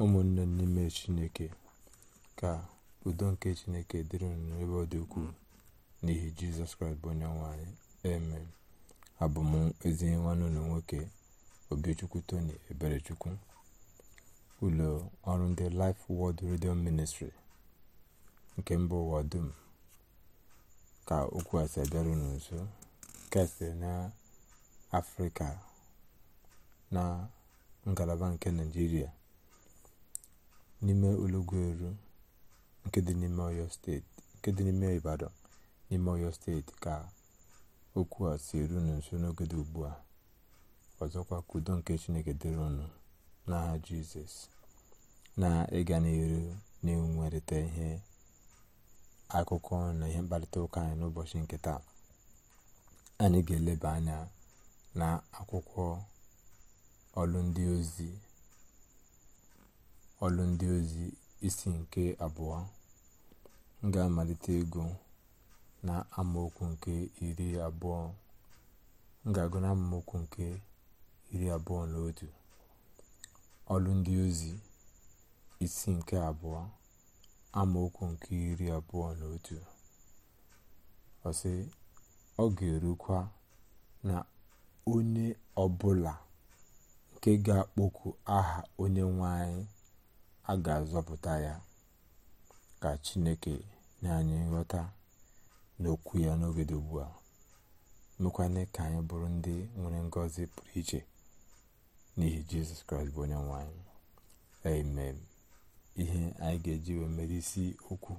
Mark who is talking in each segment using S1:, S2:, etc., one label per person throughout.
S1: ụmụnne n'ime chineke ka udo nke chineke dịrị unu ebe ọ dị ukwuu n'ihi jizọs kraịst bụ onye nwanyị amen abụ m ezi nwanne ụlọ nwoke obichukwu tony eberechukwu ụlọ ọrụ ndị Life Word redio Ministry nke mba ụwa dum ka okwu asị abịara unu nso e na na ngalaba nke naijiria n'ime olọgwụeru nke dị n'ime ọyọ steeti nke dị n'ime ibadan n'ime ọyọ steeti ka okwu a si eru unu nso n'oge dị ugbu a ọzọkwa ka udo nke chineke dịrị ọnụ n'aha jizọs na ịga n'iru na-enwerịta ihe akụkọ na ihe mkparịta ụka anyị n'ụbọchị nke taa anyị ga-eleba anya na akwụkwọ ọlụ ndị ozi ọlụ ndị ozi isi nke abụọ ga-amalite ego na amaokwu nke iri abụọ m ga-agụ na amaokwu nke iri abụọ na otu ọlụ ndị ozi isi nke abụọ amaokwu nke iri abụọ na otu ọsị ọ ga-erukwa na onye ọbụla nke ga-akpọku aha onye nwe anyị a ga-azọpụta ya ka chineke nye anyị nghọta n'okwu ya n'oge dị ugbu a mekwane ka anyị bụrụ ndị nwere ngọzi pụrụ iche n'ihi jizọs kraịst bụ onye nwe amen ihe anyị ga-eji wee mere isi okwu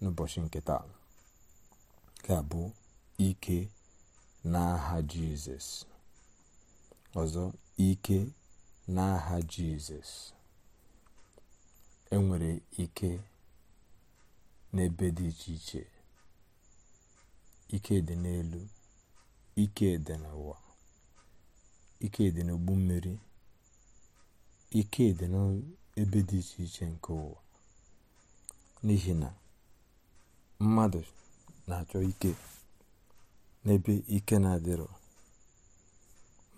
S1: n'ụbọchị nke taa ga bụ ike n'aha jizọs ọzọ ike n'aha jizọs enwere ike n'ebe dị iche iche ike dị n'elu ike dị n'ụwa ike dị n'ogbu mmiri ike dị n'ebe dị iche iche nke ụwa n'ihi na mmadụ na-achọ ike n'ebe ike na-adịrọ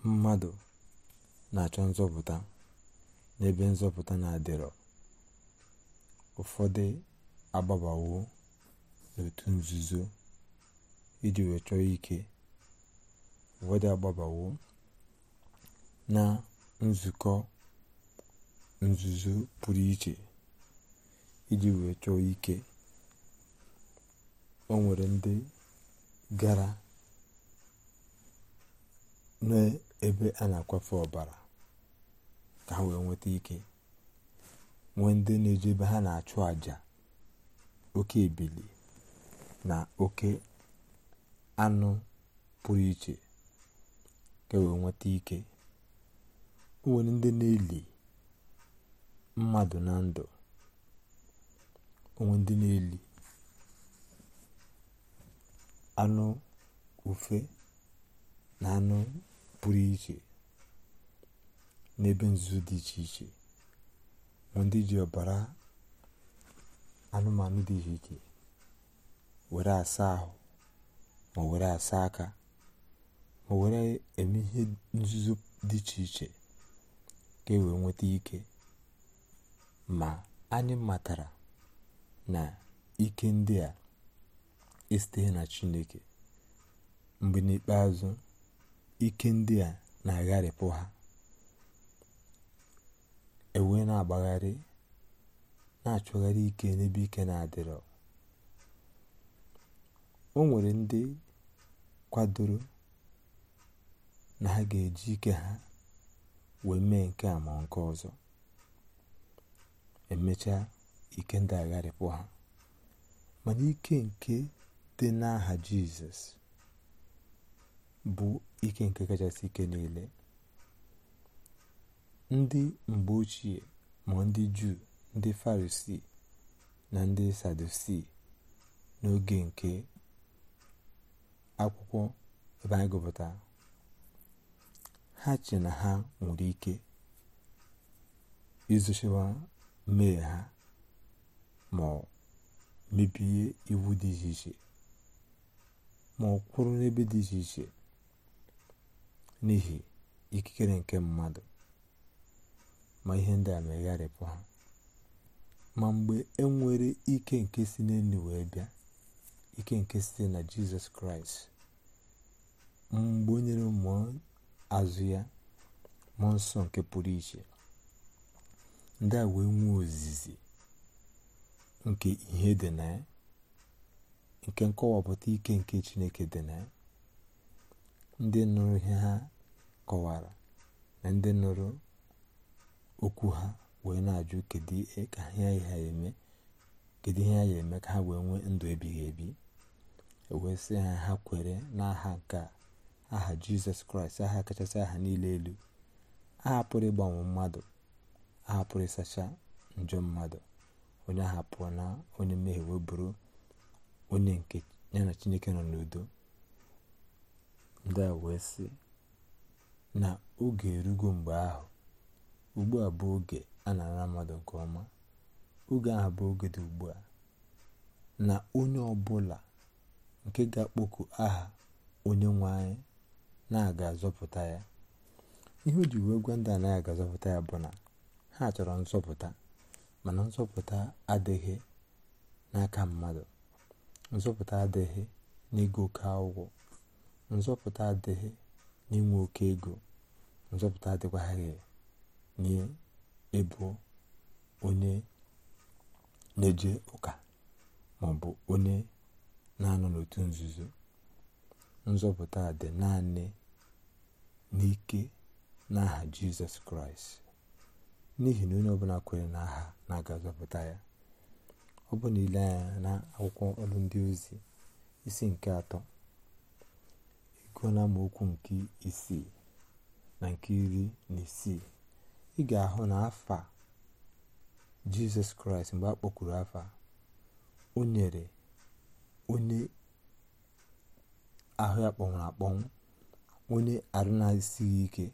S1: mmadụ na-achọ nzọpụta n'ebe nzọpụta na-adịrọ ụfọdụ agbabawo n'òtù nzuzo iji wee ike ụfọdụ agbabawo na nzukọ nzuzo pụrụ iche iji wee chọọ ike o nwere ndị gara n'ebe a na-akwafe ọbara ka ha wee nweta ike nwee ndị na-eje ebe ha na-achụ àjà oke ebili na oke anụ pụrụ iche ka e wee nweta ike nwere ndị na-eli mmadụ na ndụ onwe ndị na-eli anụ ufe na anụ pụrụ iche n'ebe nzuzo dị iche iche ma ndị ji ọbara anụmanụ dị iche iche were asa ahụ ma were asa aka ma were eme ihe nzuzo dị iche iche ka e wee nweta ike ma anyị matara na ike ndị a esiteghị na chineke mgbe n'ikpeazụ ike ndị a na-agharịpụ ha ewe na-agbagharị na-achọgharị ike n'ebe ike na-adịrọ o nwere ndị kwadoro na ha ga-eji ike ha wee mee nke a ma nke ọzọ emechaa ike ndị agharịpụ ha mana ike nke dị n'aha jizọs bụ ike nke kachasị ike niile ndị mgbe ochie ma ndị juu ndị farisii na ndị sadusi n'oge nke akwụkwọ ebe anyị ha che na ha nwere ike izochiwa mmehie ha ma mebie iwu dị iche iche ma ọ kwụrụ n'ebe dị iche iche n'ihi ikikere nke mmadụ ma ihe ndị a megharịpụ ha ma mgbe e nwere ike nke si n'elu wee bịa ike nke site na jizọs kraịst mgbe o nyere mmụọ azụ ya mmụọ nsọ nke pụrụ iche ndị a wee nwee ozizi nke ihe dị na ya nke nkọwapụta ike nke chineke dị na ya ndị nụrụ ihe ha kọwara na ndị nụrụ okwu ha wee na-ajụ kedu ihe ha ya eme ka ha wee nwee ndụ ebighị ebi e wee sị ha ha kwere n'aha nke aha jizọs kraịst aha kachasị aha niile elu aha pụrụ ịgbanwe mmadụ aha pụrụ ịsacha njọ mmadụ onye aha na onye mmehie wee bụrụ onye nke ya na chineke nọ n'udo ndị a wee sị na oge erugo mgbe ahụ ugbu a bụ oge a na-ara mmadụ nke ọma oge ahụ bụ oge dị ugbu a na onye ọbụla nke ga-akpọku aha onye nwanyị na-aga azọpụta ya ihe o ji wee gwa ndị anaghị aga azọpụta ya bụ na ha chọrọ nzọpụta mana nzọpụta adịghị n'aka mmadụ nzọpụta adịghị n'ego oke ụgwọ nzọpụta adịghị n'inwe oke ego nzọpụta adịkwaghị na ịbụ onye na-eje ụka maọbụ onye na-anọ n'otu nzuzo nzọpụta dị naanị n'ike n'aha jizọs kraịst n'ihi na onye ọbụla kwere n'aha na-aga zọpụta ya ọ bụ nile ile anya na akwụkwọ ọrụ ndị ozi isi nke atọ ego na nke isii na nke iri na isii ị ga-ahụ na afa jizọs kraịst mgbe a kpọkwuru afa o nyere onye ahụ ya akpọnwụ onye arụ na ike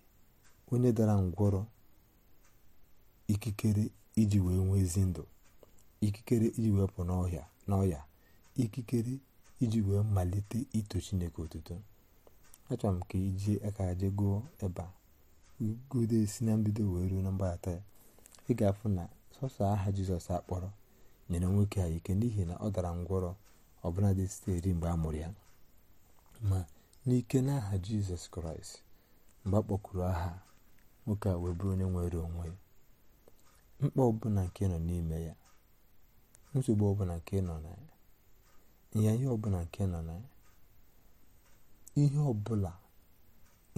S1: onye dara ngwọrọ ikikere iji wee nwee ezi ndụ ikikere iji wee pụ n'ọhịa n'ọhịa ikikere iji wee malite ito chineke otuto achọrọ m ka ijie aka jee gụọ ebe a igodo si na mbido wee ruo na mgbaghata ya ị ga-afụ na sọsọ aha jizọs akpọrọ nyere nwoke a ike n'ihi na ọ dara ngwọrọ ọbụla dị site mgbe a mụrụ ya ma n'ike n'aha jizọs kraịst mgbe a aha nwoke a wee bụrụ onye nwere onwe ya mkpa ọbụla nke nọ n'ime ya nsogbu ọbụla nke nọ na ya ọbụla nke nọ na ya ihe ọbụla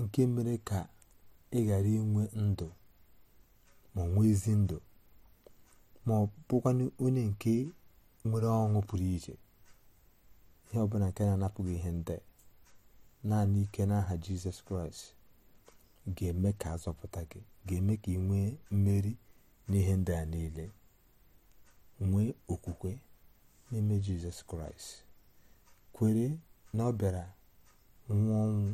S1: nke mere ka ị ghara inwe ndụ ma nwee ezi ndụ ma ọ bụkwanụ onye nke nwere ọṅụ pụrụ iche ihe ọbụla nke na-anapụghị ihe ndị naanị ike n'aha jizọs kraịst ga-eme ka azọpụta gị ga-eme ka ị nwee mmeri n'ihe ndị a niile nwee okwukwe n'ime jizọs kraịst kwere na ọ bịara nwụọ ọnwụ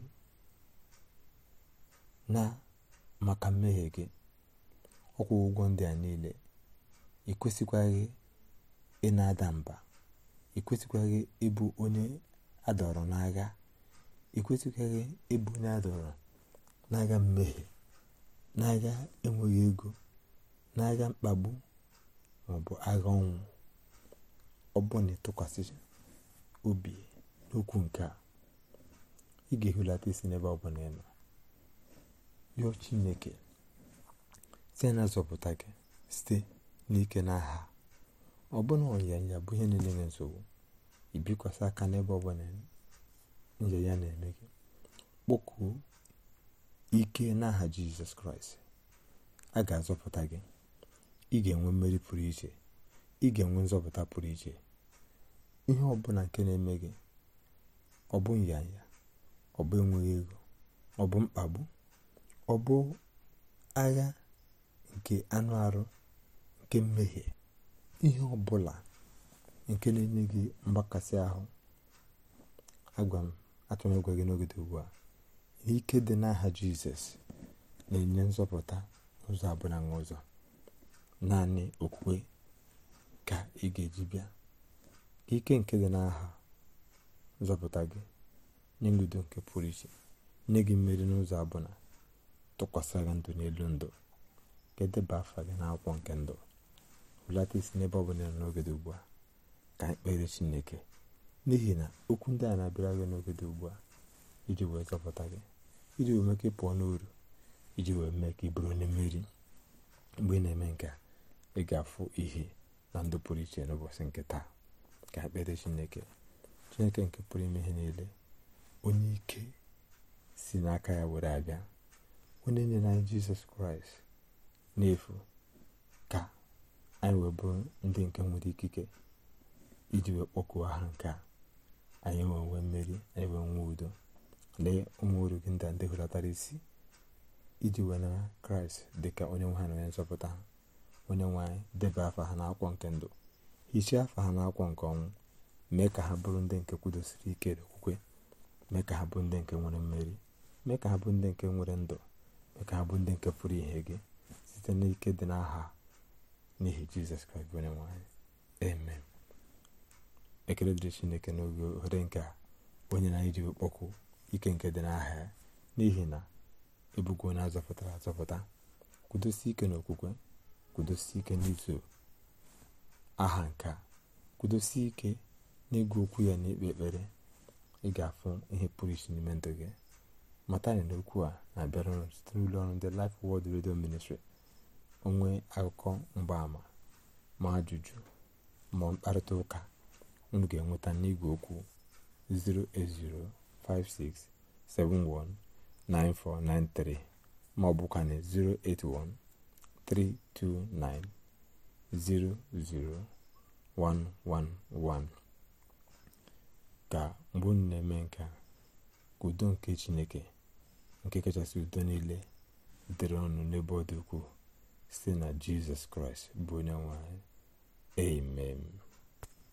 S1: na maka mmehie gị ọkwụ ụgwọ ndị a niile ị ị na-ada mba ị ịbụ onye adọrọ n'agha ị kwesịkwaghị ịbụ onye adọrọ n'agha mmehie n'agha enweghị ego na n'agha mkpagbu maọbụ agha ọnwụ ọ bụ na ịtụkwasị obi n'okwu nke a ị ga-ehulata isi n'ebe ọ bụla ị yọọ chineke site na azọpụta gị site n'ike na aha ọ bụna ọnyanya bụ ihe niile na nsogbu ibikwasị aka n'ebe ọbụla nje ya na-eme gị kpọkuo ike n'aha jizọs kraịst a ga-azọpụta gị ị ga-enwe mmeri pụrụ iche ị ga-enwe nzọpụta pụrụ iche ihe ọbụla nke na-eme gị ọ bụ nyanya ọ bụ enweghị ego ọ bụ mkpagbu ọ bụ agha nke anụ arụ nke mmehie ihe ọbụla nke na-enye gị mgbakasị ahụ agwa m gị n'ogede ugbu a ike dị n'aha jizọs na-enye nzọpụta ụzọ abụla na ụzọ naanị okwukwe ka ị ga-eji bịa ike nke dị n'aha nzọpụta gị nye nke pụrụ iche nye gị mmeri n'ụzọ abụla tụkwasị gị ndụ n'elu ndụ ka edeba afa gị n'akwụkwọ nke ndụ hụlata isi n'ebe ọ bụla nọ n'oge dị ugbu a ka kpere chineke n'ihi na okwu ndị a na-abịara gị n'oge dị ugbu a iji wee zọpụta gị iji wee mee ka ị pụọ n'uru iji wee mee ka ị bụrụ onye mmeri mgbe ị na-eme nke ị ga-afụ ihe na ndụ pụrụ iche n'ụbọchị nke taa ka kpere chineke chineke nke pụrụ ime ihe niile onye ike si n'aka ya were abịa onye nyere jizọs kraịst n'efu ka anyị wee bụrụ ndị nke nwere ikike iji wee kpọkuo ha nke a anyị wee nwee mmeri anyị wee nwee udo lee ụmụ oru gị ndị ndị hụlatara isi iji wee na kraịst dị ka onye nwe ha na onye nzọpụta ha onye nwe anyị debe afa ha n'akwụkwọ nke ndụ hichaa afa ha n'akwụkwọ nke ọnwụ mee ka ha bụrụ ndị nke kwudosiri ike okwukwe mee ka ha bụ ndị nke nwere mmeri mee ka ha bụ ndị nke nwere ndụ abụ ndị nke pụrụ ihe gị site n'ike dị n'aha n'ihi jizọs kraịst bụ onye nwanyị amen ekele dịrị chineke n'oge ohere nke onye na-iji kpọkụ ike nke dị n'aha ya n'ihi na ebugo onye azọpụtara azọpụta kwudosie ike n'okwukwe kwudosie ike n'izu aha nke kwudosi ike ike n'ịgụ okwu ya n'ikpe ekpere ị ga-afụ ihe pụrụ iche n'ime ndụ gị mata na okwu a na-abịara ụlọ site n'ụlọ ọrụ ndị Life Word Radio Ministry onwe akụkọ mgbaama ma ajụjụ ma mkparịta ụka unu ga-enweta n'igwe okwu 08056719493 ma ọ bụkwa na 08132900111 ka mgbe unu na-eme nke a udo nke chineke nke kachasị udo niile dịrị ọnụ n'ebe ọ dị ukwuu site na jizọs kraịst bụ onye nwanyị. anyị